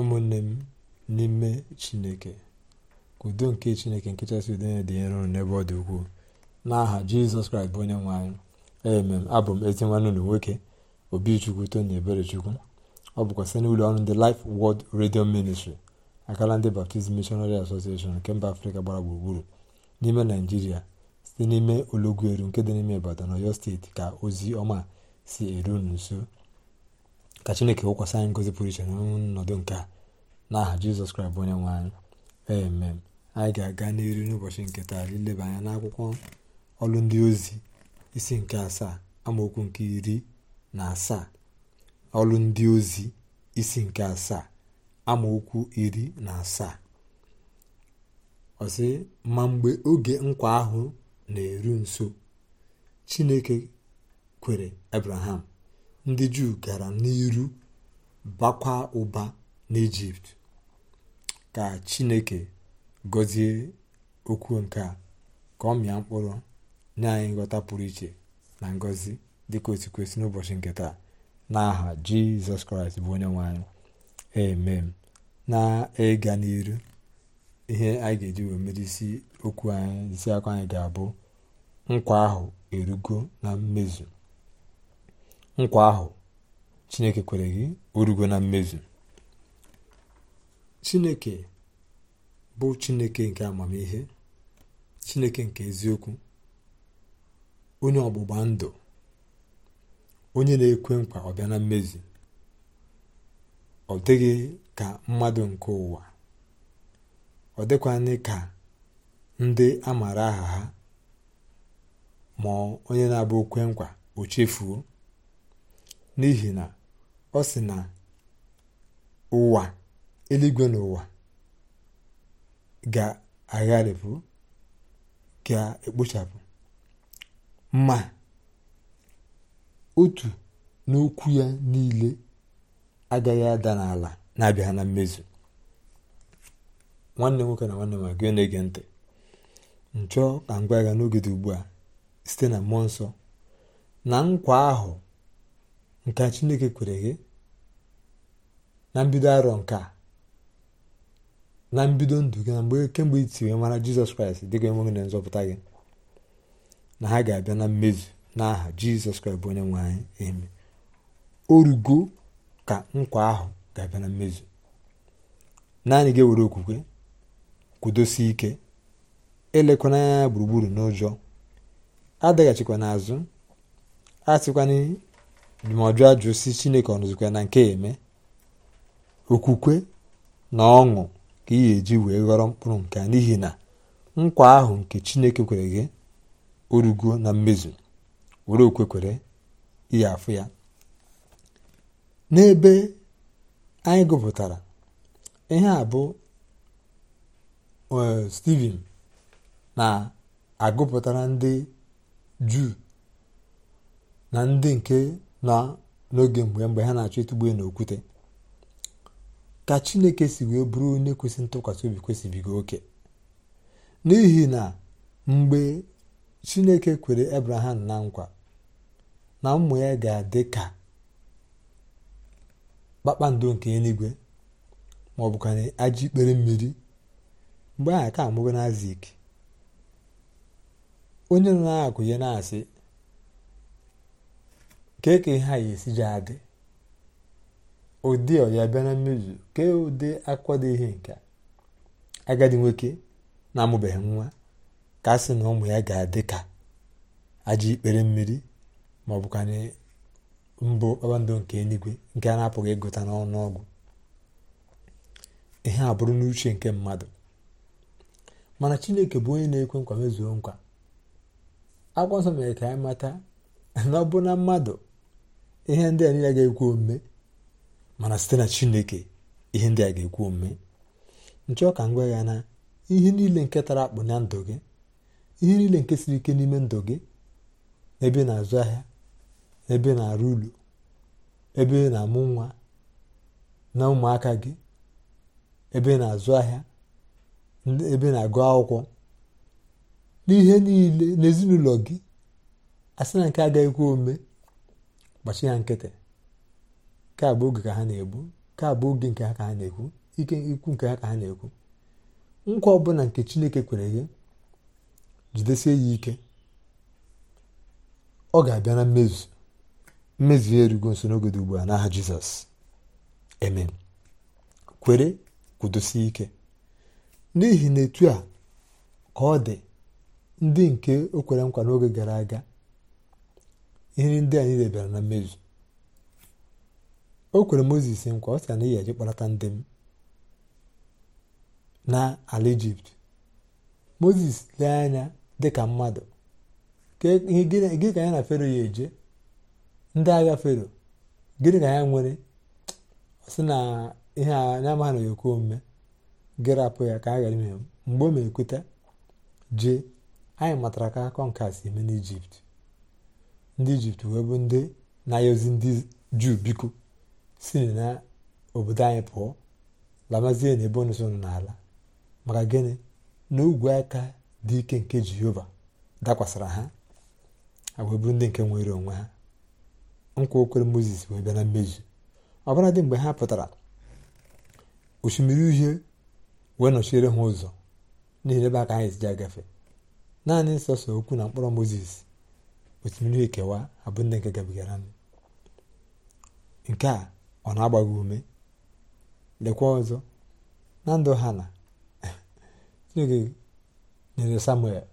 ụmụnne m n'ime chineke udo nke chineke nke chasị udo ya dị nro n'ebe ọ dị ukwuu n'aha jizọs kraịst bụ onye nwe anyị emem abụ m ezi nwanne ụlọ nwoke obichukwu tony eberechukwu ọ bụkwa site n'ụlọ ọrụ ndị Life Word redio ministri akala ndị Baptist Missionary Association nke mba afrịka gbara gburugburu n'ime naijiria site n'ime olọgwu eru nke dị n'ime ibadan ọyọ steeti ka ozi ọma si eru nso ka chineke wụkwasị anyị ngozi pụrụ iche na ọnọdụ nke a n'aha jizọs kraịst bụ onye nwe anyị anyị ga-aga n'iru n'ụbọchị nke taa ileba anya n'akwụkwọ ọrụ ndị ozi isi nke asaa amaokwu nke iri na asaa ọrụ ndị ozi isi nke asaa amaokwu iri na asaa ọsị ma mgbe oge nkwa ahụ na-eru nso chineke kwere abraham ndị juu gara n'iru bakwa ụba n'Ijipt ka chineke gọzie okwu nke a ka ọ mịa mkpụrụ nye anyị nghọta pụrụ iche na ngọzi dịka osi kwesị n'ụbọchị nke taa n'aha jizọs kraịst bụ onye nwe anyị amen na-ịga n'iru ihe anyị ga-eji wee mere okwu anyị isi anyị ga-abụ nkwa ahụ erugo na mmezu nkwa ahụ chineke kwere gị orugo na mmezi chineke bụ chineke nke amamihe chineke nke eziokwu onye ọgbụgba ndụ onye na-ekwe nkwa ọbịa na mmezi ọ dịghị ka mmadụ nke ụwa ọ dịkwanye ka ndị a maara aha ha ma onye na-abụ okwe nkwa o chefuo n'ihi na ọ sị na ụwa eluigwe na ụwa ga-agharịpụ ga-ekpochapụ ma otu n'okwu ya niile agaghị ada n'ala na-abịa na mmezu nwanne nwoke na nwanne ma gị na-ege ntị nchọ ka m gwa ya n'oge dị ugbu a site na mmụọ nsọ na nkwa ahụ nke chineke kwere gị na mbido arọ nke a na mbido ndụ gị na mgbe kemgbe iti wee mara jizọs kraịst dịka enweghị na nzọpụta gị na ha ga-abịa na mmezu n'aha jizọs kraịst bụ onye nwe anyị eme orugo ka nkwa ahụ ga-abịa na mmezu naanị ga-ewere okwukwe kwudosie ike elekwana anya gburugburu n'ụjọ adaghachikwa n'azụ asịkwana ndụmọdụ ajụ si chineke ọnụzikwa na nke eme okwukwe na ọṅụ ka ị ga-eji wee ghọrọ mkpụrụ nke n'ihi na nkwa ahụ nke chineke kwere gị orugo eh, na mmezu were okwekwere ihe afụ ya n'ebe anyị gụpụtara ihe a bụ steven na-agụpụtara ndị juu na ndị nke n'oge mgbe mgbe ha na-achọ ịtụgbu okwute ka chineke si wee bụrụ onye kwesị ntụkwasị obi kwesịbigo oke n'ihi na mgbe chineke kwere abraham na nkwa na ụmụ ya ga-adị ka kpakpando nke eluigwe maọbụ ka na ajọ ikpere mmiri mgbe aha ka mgbe na azik onye nọ akụ ya na-asị kee ihe a ya esi ji adị ụdị ọ ya bịa na mmezu kee ụdị akwado ihe nke agadi nwoke na-amụbeghị nwa ka a sị na ụmụ ya ga-adị ka aja ikpere mmiri ma ọ bụkwanye mbụ kpakpando nke eluigwe nke a na-apụghị ịgụta n'ọnụ ọgwụ ihe a bụrụ n'uche nke mmadụ mana chineke bụ onye na-ekwe nkwa mezuo nkwa akwụkwọ nsọ mere ka anyị mata na ọ bụ na mmadụ ihe ndị a niile ga-ekwu omume mana site na chineke ihe ndị a ga-ekwu omume nchọọ ka m gwa ya na ihe niile nke tara akpụ na ndụ gị ihe niile nke siri ike n'ime ndụ gị ebe na-azụ ahịa ebe na-arụ ụlọ ebe na-amụ nwa na ụmụaka gị ebe na-azụ ahịa ebe na-agụ akwụkwọ n'ihe niile n'ezinụlọ gị a na nke agaghịkwa omume gbachi ya nkịtị ka oge ka ha na-egbu ka abụ oge nke ha ka ha na-ekwu ike ikwu nke ha ka ha na-ekwu nkwa ọbụla nke chineke kwere gị jidesie ya ike ọ ga-abịa na mmezu mmezu ya erugo nso n'oge ugbu a n'aha jizọs amen kwere kwudosie ike n'ihi na etu a ka ọ dị ndị nke o kwere nkwa n'oge gara aga ihe ndị anyị debere na mmezu o kwere mozis nkwa ọ sị na ị ga-eje kpọlata ndị m n'ala ijipt moses lee anya dịka mmadụ gịnị ka ya na fero ya eje ndị agha fero gịnị ka ya nwere sị na ihe anya amaghị na ekwe omume gịrapụ ya ka a ghara ime mgbe o ma ekweta jee anyị matara ka akọ nke a si eme n'ijipt ndị ijipt wee bụ ndị na-aya ozi ndị juu biko si na obodo anyị pụọ lamazie na ebe unu nọ n'ala maka gịnị na ogwe aka dị ike nke jehova dakwasara ha wee bụrụ ndị nke nwere onwe ha nkwa okwere moses wee bịa na mmezu ọbara dị mgbe ha pụtara osimiri uhie wee nọchiere ha ụzọ n'ihi ebe aka anyị ji agafe naanị nsọsọ okwu na mkpọrọ moses osimiri ekewa abụ ndị nke gabigara nke a ọ na-agba ume lekwa ọzọ na ndụ ha na chineke nyere samuel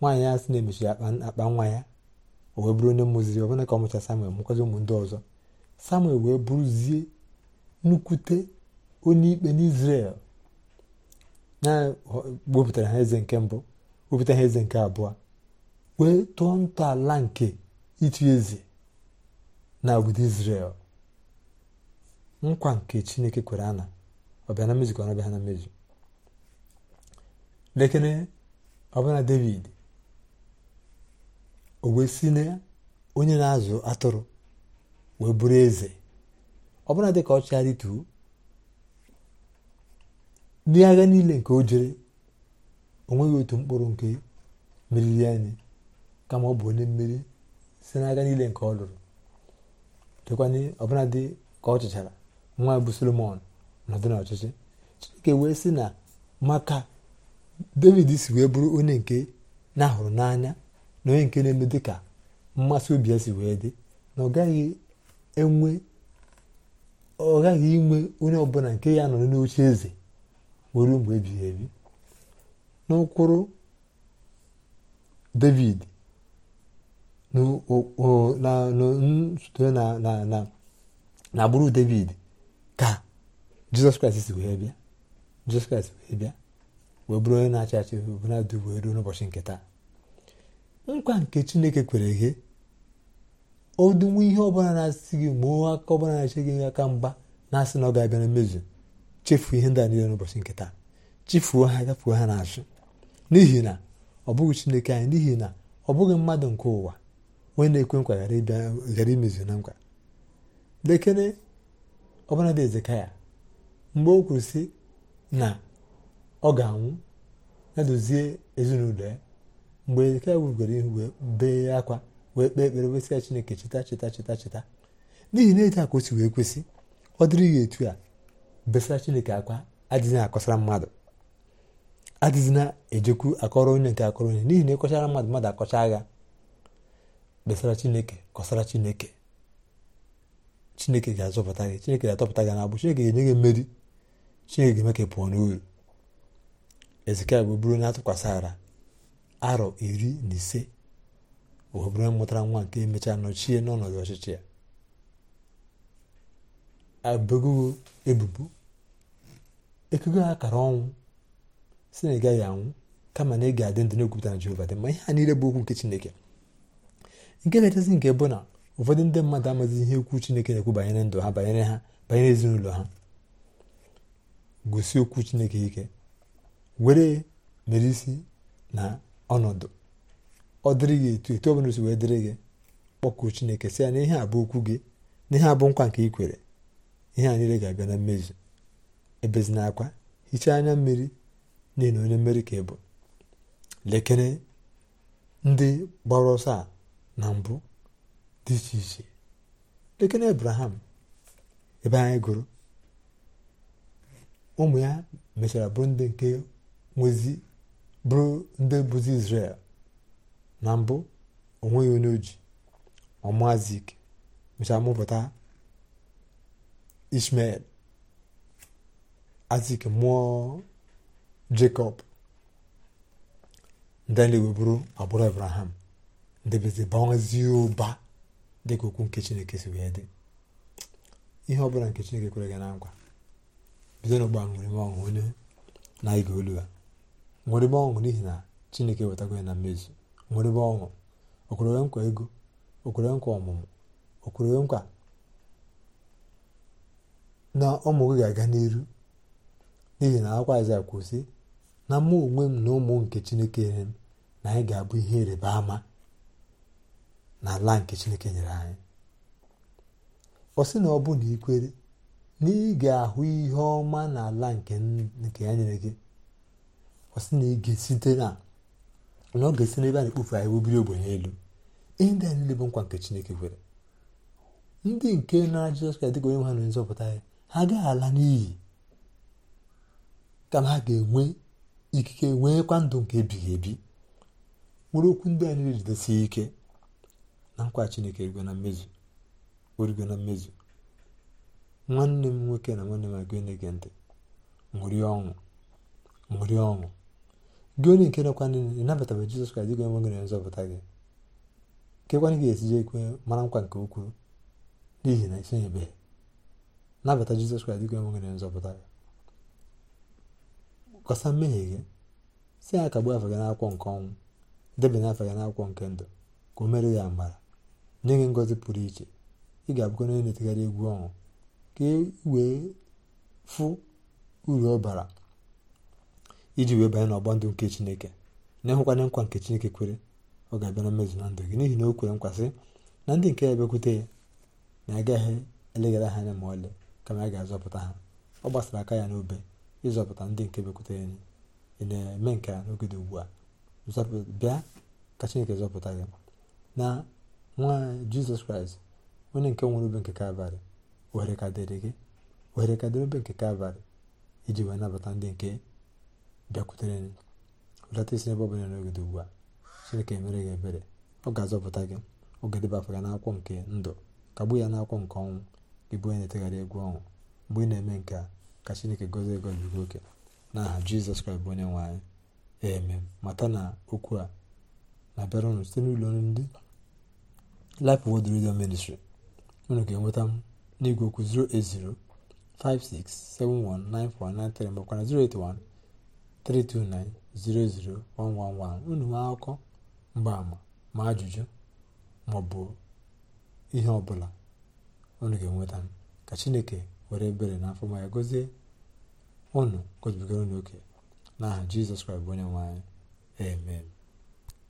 nwaanyị ya sị na-emechi akpa nwa ya o wee bụrụ onye mụziri ọbụna ka ọ mụcha samuel mụkwazi ụmụ ndị ọzọ samuel wee bụrụzie nnukwute onye ikpe n'izrel na gbopụtara ha eze nke mbụ gbopụta ha eze nke abụọ wee tụọ ntọala nke ịtụ eze na obodo Izrel nkwa nke Chineke kwere ana ọbịa na mmezu ka ọ na-abịa na mmezu lekere ọbụna David o wee si na onye na-azụ atụrụ wee bụrụ eze ọbụna dị ka ọ chịgharị tuo agha niile nke o jere o otu mkpụrụ nke meriri anyị kama ọ bụ onye mmeri si n'aka niile nke ọ lụrụ chekwanye ọbụla dị ka ọ chịchara nwa bụ solomon nọdụ n'ọchịchị chineke wee sị na maka david si wee bụrụ onye nke na-ahụrụ n'anya na onye nke na-eme dị ka mmasị obi ya si wee dị na ọ gaghị enwe ọ gaghị inwe onye ọbụla nke ya nọrọ n'oche eze nwere mgbe ebighị ebi n'ụkwụrụ david site na agbụrụ david ka jizọs kraịst wee bịa jizọs kraịst wee bịa wee bụrụ onye na-achị achị bụnadụ wee ruo n'ụbọchị nke taa nkwa nke chineke kwere ghe odinwe ihe ọbụla na-asị gị ma aka ọbụla na-achị gị aka mgba na-asị na ọ ga-abịa na mmezu chefuo ihe ndị a niile n'ụbọchị nke taa chefuo ha gafuo ha n'azụ n'ihi na ọ bụghị chineke anyị n'ihi na ọ bụghị mmadụ nke ụwa onye na-ekwe nkwa ghara ịbịa ghara imezu na nkwa lekene ọbụla dị ezekaya mgbe o kwuru na ọ ga-anwụ ya dozie ezinụlọ ya mgbe ezekaya wubigoro ihu wee bee akwa wee kpee ekpere wesị ya chineke cheta cheta cheta cheta n'ihi na etu akosi wee kwesị ọ dịrị ya etu a besara chineke akwa adịghị akọsara mmadụ adịghị na-ejekwu akọrọ onye nke akọrọ onye n'ihi na ịkọchara e mmadụ mmadụ akọcha agha kpesara chineke kọsara chineke chineke ga-azọpụta gị chineke ga-atọpụta gị n'agbụ chineke ga-enye gị mmeri chineke ga-eme ka pụọ n'uru ezekiel bụ bụrụ na-atụkwasịara arọ iri na ise wee bụrụ mụtara nwa nke emechaa nọchie n'ọnọdụ ọchịchị ya abụgo ebubo ekego akara ọnwụ si na ị gaghị anwụ kama na ị ga-adị ndụ na-ekwupụta na jehova dị ma ihe a niile bụ okwu nke chineke nke na nke bụ na ụfọdụ ndị mmadụ amaghị ihe okwu chineke na-ekwu banyere ndụ ha banyere ha banyere ezinụlọ ha gosi okwu chineke ike were mere isi na ọnọdụ ọ dịrị gị etu etu ọbụla si wee dịrị gị kpọkuo chineke sị ya na ihe a bụ okwu gị na ihe a bụ nkwa nke ị kwere ihe a niile ga-abịa na mmezu ebezina akwa hichaa anya mmiri n'ihi na onye mmeri ka ị bụ lekere ndị gbara ọsọ a na mbụ dị iche iche lekene abraham ebe anyị gụrụ ụmụ ya mechara bụrụ ndị nke nwezi bụrụ ndị bụzi israel na mbụ onweghị onye oji ọmazik mechara mụpụta ishmael azik mụọ jacob ndị na ewe bụrụ agbụrụ abraham ndebezibazi ụba dịka okwu nke chineke si wee dị ihe ọbụla nke chineke kwere gị na nkwa bido n'ọgbọ ṅụrịme ọṅụ onye na-ege olu ya ṅụrịme ọṅụ n'ihi na chineke wetago ya na mmezu ṅụrịme ọṅụ okwere nkwa ego okwere nkwa ọmụmụ okwere nkwa na ụmụ gị ga-aga n'iru n'ihi na akwa Aịzaya kwụsị na mụ onwe m na ụmụ nke chineke nyere m na anyị ga-abụ ihe ịrịba ama na ala nke chineke nyere anyị ọ sị na ọ bụ na ikwere na ị ga-ahụ ihe ọma na ala nke ya nyere gị ọ sị na ị ga-esite na na ọ ga-esi n'ebe a na-ekpofu ahịa obiri ogbe n'elu ndị a niile bụ nkwa nke chineke kwere ndị nke nara jizọs kraịst dịka onye ha na nzọpụta ya ha agaghị ala n'iyi kama ha ga-enwe ikike kwa ndụ nke ebighị ebi nwere okwu ndị a niile jidesie ike na nkwa chineke erugo na mmezu orugo na mmezu nwanne m nwoke na nwanne m agụ na-ege ntị ṅụrịa ọṅụ ṅụrịa ọṅụ gị onye nke nakwa ị nabatabe jizọs kraịst gị enweghị na nzọpụta gị nkekwana gị esiji ekwe mara nkwa nke ukwuu n'ihi na isonyebeghị nabata jizọs kraịst gị enweghị na nzọpụta gị kọsa mmehie gị si ya kagbuo afọ gị n'akwụkwọ nke ọnwụ debe afọ gị n'akwụkwọ nke ndụ ka o mere ya mara. nye gị ngọzi pụrụ iche ị ga-abụkwa onye na-etegharị egwu ọṅụ ka e wee fụ uru ọ bara iji wee banye n'ọgba ndụ nke chineke na-ehụkwanye nkwa nke chineke kwere ọ ga-abịa na mmezu na ndụ gị n'ihi na o kwere nkwasị na ndị nke ya bịakwute ya na agaghị eleghara ha anya ma ọlị kama ya ga-azọpụta ha ọ gbasara aka ya n'obe ịzọpụta ndị nke bịakwutere anyị ị na-eme nke a n'oge dị ugbu a bịa ka chineke zọpụta gị na nwa jizọs kraịst onye nke nwere obe nke kalvarị ohere ka dịrị gị ohere ka dịrị obe nke kalvarị iji wee nabata ndị nke bịakwutere lọta isi n'ebe ọ bụla dị ugbu a chineke mere gị ebere ọ ga-azọpụta gị ọ ga-edeba afọ n'akwụkwọ nke ndụ kagbuo ya n'akwụkwọ nke ọnwụ gị bụ onye na-etegharị egwu ọnwụ mgbe ị na-eme nke a ka chineke gozie gozi gị oke n'aha jizọs kraịst bụ onye nwe anyị eme mata na okwu a na-abịara ụnụ site n'ụlọ ndị Life world Radio Ministry unu ga-enweta m n'igwe okwu 08056719493 makwara 08132900111 unu nwee akụkọ mgbaama ma ajụjụ maọbụ ihe ọbụla unu ga-enweta m ka chineke were ebere na afọ ma ya gozie unu gozibigara unu oke n'aha jizọs kraịst onye amen